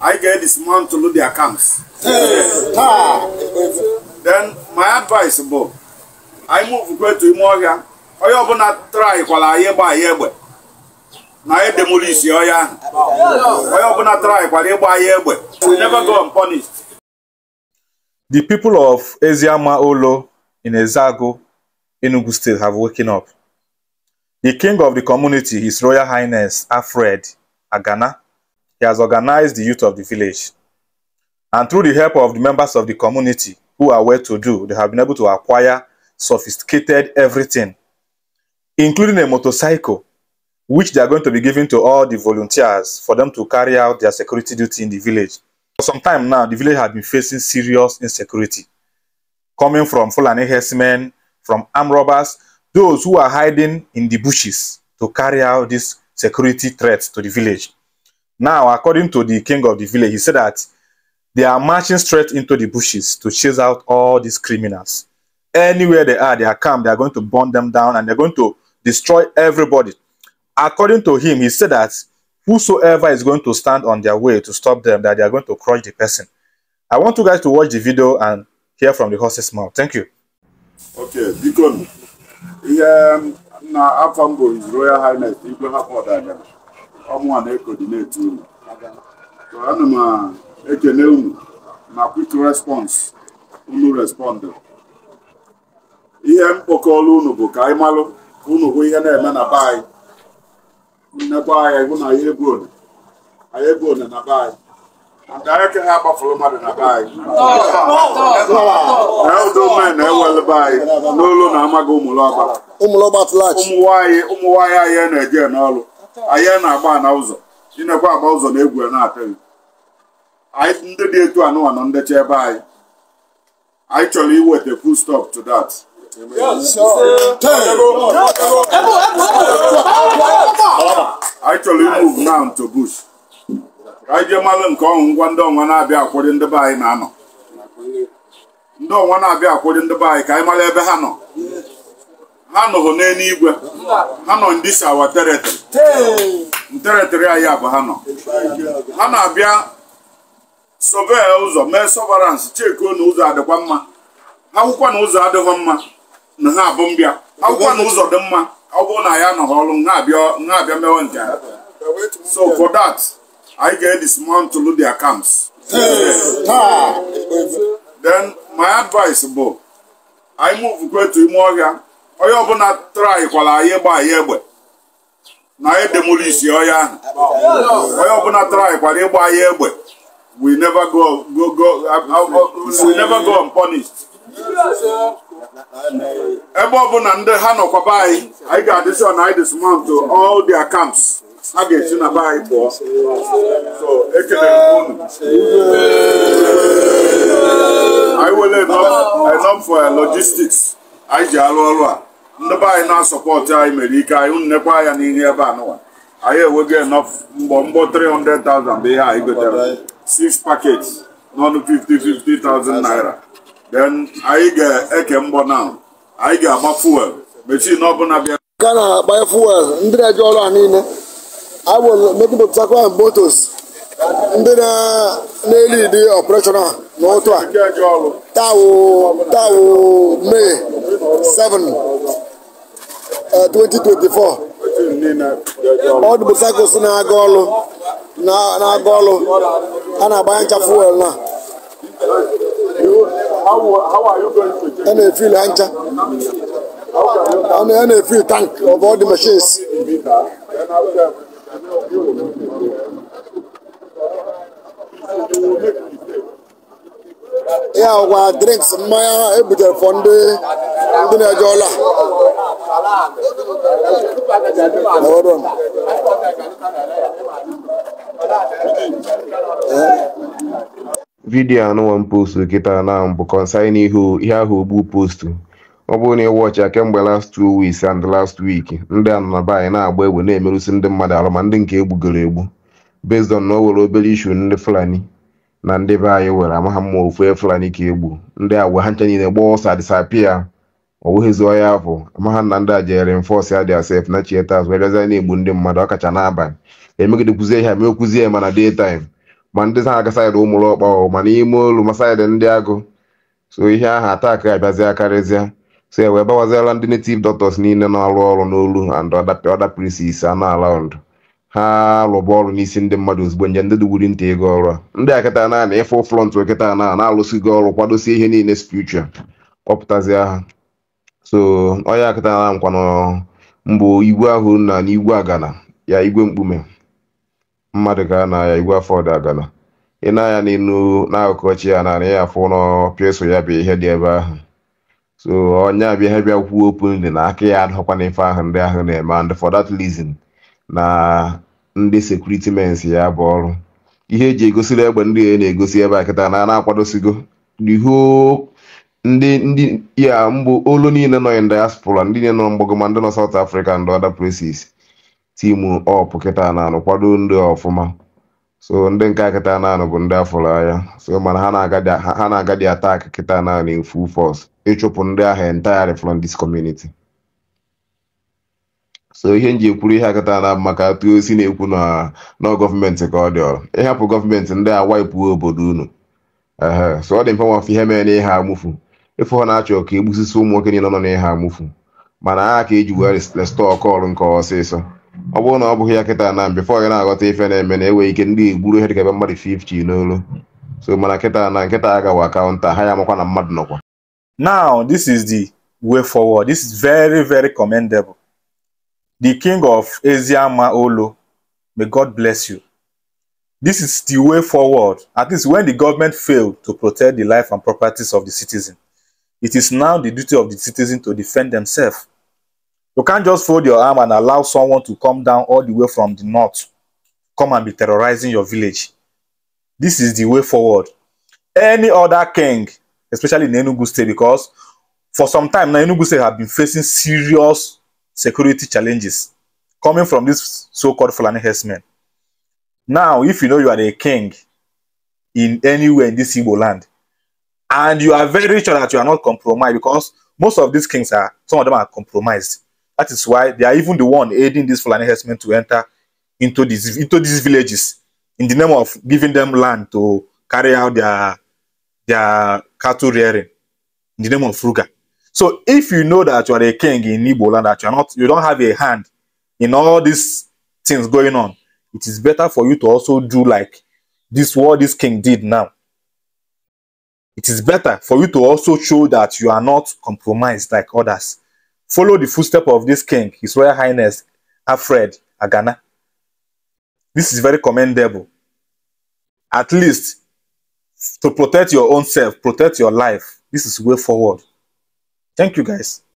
I get this man to load their camps. Eh, Then my advice, Bob, I move go to Imoria. Onye ọbụla try kwala anyị gba anyị egbe na anyị demolish ọya onye ọbụla try kwala ịgba anyị egbe we never go unpunished. The people of Eziama Olo in Ezago, Enugu State have woken up. The king of the community, His Royal Highness Alfred Agana, he has organized the youth of the village. And through the help of the members of the community who are well-to-do, they have been able to acquire sophisticated everything, including a motorcycle, which they are going to be giving to all the volunteers for them to carry out their security duty in the village. For some time now, the village has been facing serious insecurity, coming from Fulani herdsmen, from armed robbers, those who are hiding in the bushes to carry out these security threats to the village. Now, according to the king of the village, he said that they are marching straight into the bushes to chase out all these criminals. Anywhere they are, they are come, they are going to burn them down and they're going to destroy everybody. According to him, he said that whosoever is going to stand on their way to stop them, that they are going to crush the person. I want you guys to watch the video and hear from the horse's mouth. Thank you. Okay, Deacon. Yeah, um, now, I'm from Royal Highness, Ibrahim Odadam. ọmụnwa na-ekọdineti unu ana m ah, ekele unu na quick respọns unu respondụ ihe mkpọkọrọ unu bụ ka anyị malụ ihe na-eme na be anyị nnekwa anyị hụ na anyị ebuone anyị ebuone one anyị mmadụ na be anyị na anyị n'olu na amaghị ụmụnwaanyị anyị na-eje ahịa na-agba na ụzọ chinekwe agba ụzọ na egwu na-apịaghị anyị ndị dị etu anụwa nọ ndecha ebe anyị anyị chọrọ iweta full stop to dat. anyị chọrọ imove now to bush ka anyị jee malụ nke ọnwụ ngwa ndị ọnwa na-abịa akwụrị ndị be anyị na-anọ ndị ọnwa na-abịa akwụrị ndị be anyị ka anyị mara ebe ha nọ ha nọghị n'eluigwe ha nọ ndị si awa teretịrị teretịrị anyị abụ ha nọ ha na-abịa sọve ụzọ mee sọvaransị chekuo na ụzọ adịkwa mma akwụkwọ na ụzọ adịghị mma na ha abụ mbịa akwụkwọ na ụzọ dị mma ọ bụrụ na ya nọghị ọrụ ha abịa mewe nke ha so for that anyị ga-edismantle their camps then my advice bụ anyị move kwetu ime ọhịa onye ọbụla traikwala anyị gba anyị egbe na anyị demolisi ọya ahụ onye ọbụla kwara ịgba anyị egbe we never go go go we never go unpunished ebe ọbụla ndị ha nọkwaba anyị anyị ga-adịsi ọ na anyị dismount all their camps ha ga-esi na be anyị pụọ so ekelere m unu anyị were enough for logistics anyị ji arụ ọrụ a ndị be anyị na-asọpọtụ anyị mere ike anyị nekwa ya n'ihe ebe a nụwa anyị enwego enough mgbọ mgbọ 300,000 bụ ihe anyị gotere six packets n'ọnụ 50 50,000 naira then anyị ga-eke mbọ na anyị ga-agba fuel na ọbụla bịa ka na-agba fuel ndị na-eji ọrụ a niile awụmejupụtakwa motos ndị na-elidi ọpụreshọnal n'ụtụ a tawo may 7 2024 eh, ọdụ motorcycles na-aga na-aga ọrụ a na-agbanye ncha fuel na a na-efil ncha a na-efil tank of all the machines ya ọgwa drinks mmanya ebutere fọ ndị na-eje ọla vidiyo anụnwa m postu kịta na mbụ kọnsain ihe ahụ ogbu postu ọ bụrụ na ị wọchịa kemgbe last two weeks and last week ndị anọnaba anyị na-agba egbe na-emerụsi ndị mmadụ arụ ma ndị nke egbugoro egbu based on na o were obere ishu ndị fulani na ndị be anyị were amaghị mma ofu e fulani ka egbu ndị agwa ha ncha niile gbaa ọsa disapia ọ bụghịzi ọya afọ maha na ndị a jere enforce ya asef na chieta azụ erezi na-egbu ndị mmadụ ọkacha n'abalị emegidekwuzie ha e mee kwuzie mana day time ma ndị ha aga saịdị ụmụrụ ọkpa ọ ma n'ime olu ma saịdị ndị agụ so ihe ahụ ataki abịazịa karịzịa so e wee bawaziela ndị native doctors niile na-arụ ọrụ n'olu and other places anọ around ha rụba ọrụ n'isi ndị mmadụ ozugbo nje ndị dugwuri ntị ego ọrụ a ndị akịta na ịfụ front okịta na na-alụsigo ọrụ kwadosie ihe niile spiritual kpọpụtazi ha so onye akịtara nkwanụ mbụ igwe ahụ na n'igwe agana ya igwe mkpume mmadụ ga na ya igwe afọ dị agana ị na ya n'elu n'akụkụ chi ya narị ya afọ nọ pịso ya bụ ihe dị ebe ahụ so onye abịa ha bịa kwuo openly na aka ya adọkwana ife ahụ ndị ahụ na-eme and for that reason na ndị sekuriti ya bụ ọrụ ihe eji egosiri egbe ndị e na-egosi ebe a kịta na a na-akwadosigo the whole ndị ndị ya mbụ olu niile nọ in diaspora ndị niile nọ mgbago ma ndị nọ South Africa ndị other places timu op kịta na-anụ kwado ndị ọfụma so ndị nke kịta na-anụ bụ ndị afụrụ anya so mana ha na-aga dị atak kịta na-anụ in full force ịchụpụ ndị ahụ entirely from this community so ihe nji ekwuru ihe akịta na maka atụ osi na-ekwu na gọọmenti ka ọ dị ọrụ ịhapụ gọọmenti ndị a waipụ obodo unu so ọ dị mfe nwafe ihe mere na ihe amụfu efu ọ na-achọ ka egbusisi ụmụ nwoke niile nọ n'ihe amụfu mana aha ka eji wugharị restọọ kọl nke ọsịsọ ọ bụrụ na ọ bụghị ya kịta na mbe fọ gị na-aghọta ife na-eme na enwe ike ndị egburu ihe dịka ebe mmadụ 50 n'olu so mana kịta na nkịta agawa kaụnta ha ya makwa na mmadụ nọkwa now this is the way forward this is very very commendable the king of eziama olo may god bless you this is the way forward at least when the government failed to protect the life and properties of the citizen It is now the duty of the citizen to defend themselves. You can't just fold your arm and allow someone to come down all the way from the north, come and be terrorizing your village. This is the way forward. Any other king, especially in Enugu State, because for some time now, Enugu State have been facing serious security challenges coming from these so-called Fulani herdsmen. Now, if you know you are a king in anywhere in this Igbo land, and you are very sure that you are not compromised because most of these kings are some of them are compromised that is why they are even the one aiding these fulani herdsmen to enter into these into these villages in the name of giving them land to carry out their their cattle rearing in the name of fruga so if you know that you are a king in Igbo land that you are not you don't have a hand in all these things going on it is better for you to also do like this what this king did now it is better for you to also show that you are not compromised like others. Follow the footstep of this king, His Royal Highness Alfred Agana. This is very commendable. At least to protect your own self, protect your life. This is way forward. Thank you guys.